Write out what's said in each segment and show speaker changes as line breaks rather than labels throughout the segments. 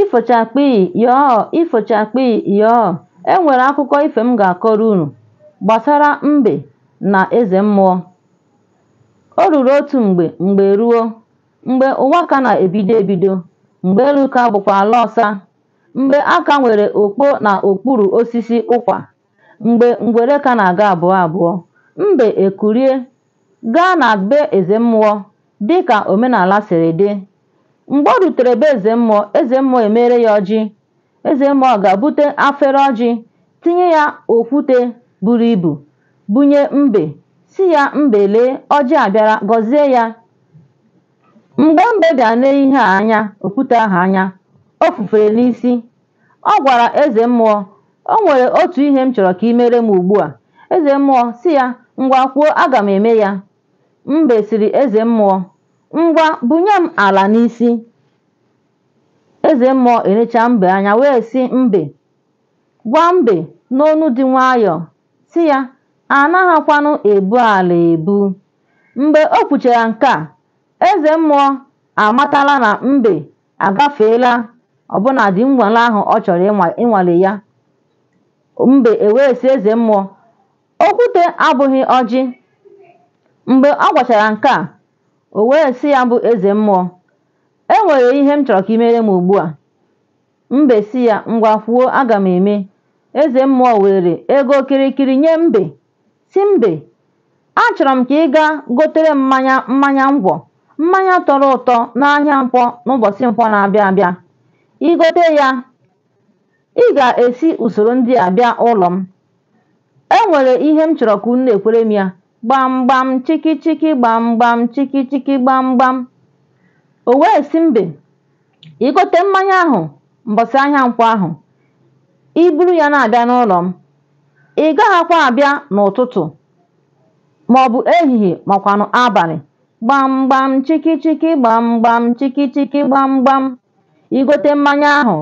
Ifochakpi "yọọ" Ifochakpi "yọọ" E nwere akụkọ ife m ga-akọrọ unu gbasara mbe na eze mmụọ. O ruru otu mgbe mgbe ruo, mgbe ụwa ka na-ebido ebido, mgbe elu ka bụkwa ala ọsa, mgbe aka nwere okpo na okpuru osisi ụkwa, mgbe ngwere ka na-aga abụọ abụọ, mbe ekurie, gaa na be eze mmụọ dịka omenala siri dị. Mgbe ọ rutere be eze mmụọ eze mmụọ emere ya ọjị eze mmụọ ga-abute afere ọjị tinye ya okwute buru ibu bunye mbe si ya mbe lee ọjị abịara gọzie ya mgbe mbe bịara lee ihe a anya okwute ahụ anya o n'isi ọ gwara eze mmụọ o nwere otu ihe m chọrọ ka ị mere m ugbu a eze mmụọ si ya ngwa kwuo aga m eme ya mbe siri eze mmụọ Ngwa bunye m ala n'isi. Eze mmụọ erecha mbe anya wee si mbe gwa mbe n'onu dị nwayọọ si ya anaghịkwanụ ebu ala ebu mgbe o kwuchara nke a eze mmụọ amatala na mbe agafeela ọbụnadị nnwale ahụ ọ chọrọ ịnwale ya mbe ewee si eze mmụọ okwute abụghị ọjị mgbe ọ gwachara nke a o wee sị ya bụ eze mmụọ e nwere ihe m chọrọ ka i mere m ugbu a mbe si ya ngwa kwuo aga m eme eze mmụọ were ego kirikiri nye mbe si mbe achọrọ m ka ị gaa gotere mmanya mmanya ngwọ mmanya tọrọ ụtọ n'ahịa nkwọ n'ụbọchị mkpọ na-abịa abịa igote ya ị ga-esi usoro ndị a bịa ụlọ m e nwere ihe m chọrọ ka unu ekwere m ya gbamgbam chikichiki gbamgbam chikichiki gbamgbam o wee si mbe igote mmanya ahụ mbosi ahịa nkwọ ahụ iburu ya na-abịa n'ụlọ m ị gaghịkwa abịa n'ụtụtụ maọbụ ehihie makwanụ abalị gbamgbam chikichiki gbamgbam chikichiki gbamgbam igote mmanya ahụ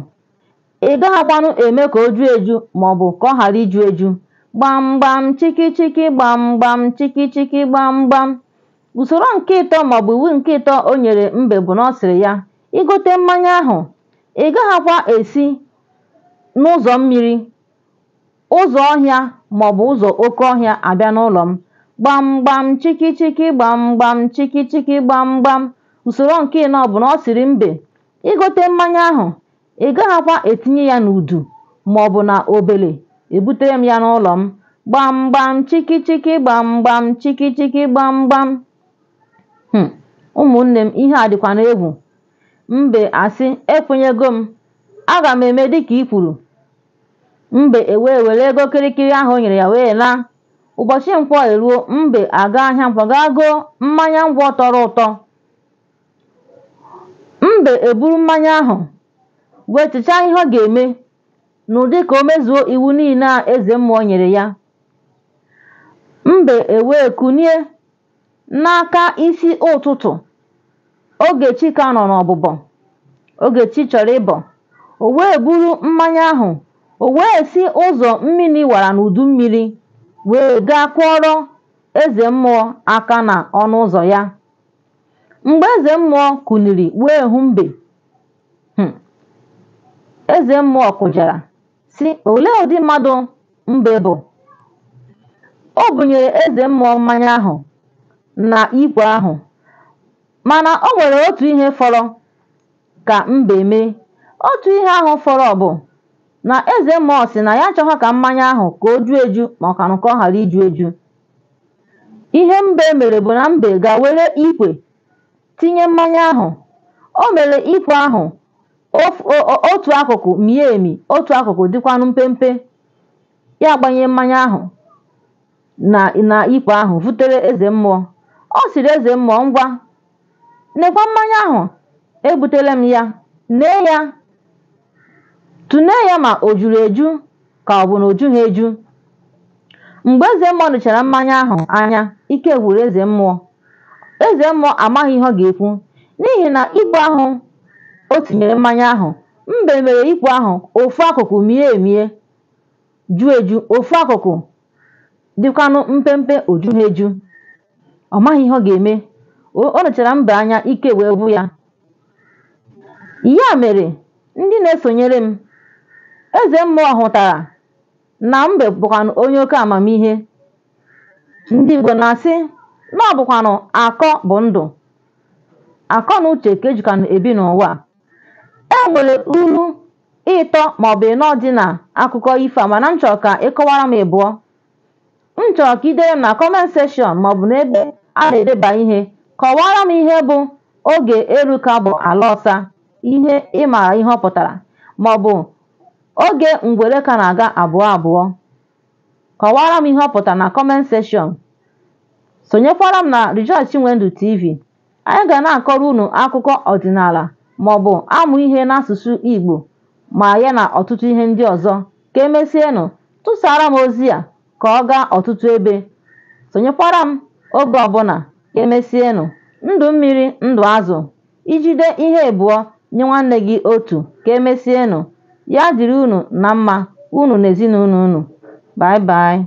ị gaghịkwanụ eme ka o ju eju maọbụ ka ọ ghara iju eju gbamgbam chikichiki gbamgbam chikichiki gbamgbam usoro nke ịtọ maọbụ iwu nke ịtọ o nyere mbe bụ na ọ sịrị ya ịgote mmanya ahụ ị gaghịkwa esi n'ụzọ mmiri ụzọ ọhịa maọbụ ụzọ oke ọhịa abịa n'ụlọ m gbamgbam chikichiki gbamgbam chikichiki gbamgbam usoro nke ịnọ bụ na ọ sịrị mbe igote mmanya ahụ ị gaghịkwa etinye ya n'udu maọbụ na obele ebutere m ya n'ụlọ m gbamgbam chikichiki gbamgbam chikichiki gbamgbam hmm. ụmụnne m ihe a dịkwa n'egwu mbe asị ekwenyego m aga m eme dịka i kwuru mbe ewee were ego kịrịkịrị ahụ nyere ya wee laa ụbọchị nkwọ eruo mbe aga ahịa nkwọ ga goo mmanya ngwọ tọrọ ụtọ mbe eburu mmanya ahụ wee chichaa ihe ọ ga-eme n'ụdị ka o mezuo iwu niile a eze mmụọ nyere ya mbe ewee kunie n'aka isi ụtụtụ Ogechi ka nọ n'ọbụbọ Ogechi chọrọ ịbọ o wee buru mmanya ahụ o wee si ụzọ mmiri wara n'udu mmiri wee gaa kwọrọ eze mmụọ aka na ọnụ ụzọ ya mgbe eze mmụọ kuniri wee hụ mbe hmm. eze mmụọ kụjara si Olee ụdị mmadụ mbe bụ? O bunyere eze mmụọ mmanya ahụ na ikwe ahụ, mana o nwere otu ihe fọrọ ka mbe mee. Otu ihe ahụ fọrọ bụ na eze mmụọ si na ya achọghọ ka mmanya ahụ ka o ju eju ma ọ ka ọ ghara iju eju. Ihe mbe mere bụ na mbe ga-were ikwe tinye mmanya ahụ. O mere ikwe ahụ otu akụkụ mie emi otu akụkụ dịkwanụ mpempe ya gbanye mmanya ahụ na na ahụ vutere eze mmụọ ọ sịrị eze mmụọ ngwa nekwa mmanya ahụ ebutere m ya nee ya tụnee ya ma o juru eju ka ọ bụ na o jughị eju mgbe eze mmụọ nụchara mmanya ahụ anya ike gwụrụ eze mmụọ eze mmụọ amaghị ihe ọ ga-ekwu n'ihi na igwe ahụ o tinyere mmanya ahụ mbe mere ikwu ahụ ofu akụkụ mie emie ju eju ofu akụkụ dịkwanụ mpempe oju eju ọ maghị ihe ọ ga-eme o nechara mbe anya ike wee bụ ya ya mere ndị na-esonyere m eze mmụọ hụtara na mbe bụkwanụ onye oke amamihe ndị Igbo na-asị na ọ bụkwanụ bụ ndụ akọ na uche ka ejikwanụ ebi n'ụwa nwere ilu ịtọ maọbụ ịnọ dị n'akụkọ ifo a mana m chọrọ ka ị kọwara m ịbụọ m chọrọ ka idere m na kọment seshọn maọbụ n'ebe a na-edeba ihe kọwara m ihe bụ oge eruka bụ ala ọsa ihe ịmara ihe ọ pụtara maọbụ oge ngwere ka na-aga abụọ abụọ kọwara m ihe ọ pụtara na kọment seshọn sonyekwara m na Rejoice wendu TV anyị ga na-akọrọ unu akụkọ ọdịnala maọbụ amụ ihe n'asụsụ Igbo ma ya na ọtụtụ ihe ndị ọzọ ka emesienụ tụsara m ozi a ka ọ gaa ọtụtụ ebe sonyekwara m oge ọbụla emesienụ ndụ mmiri ndụ azụ ijide ihe ebuo nye nwanne gị otu ka emesienụ ya dịrị unu na mma unu na ezinụlọ unu bai bai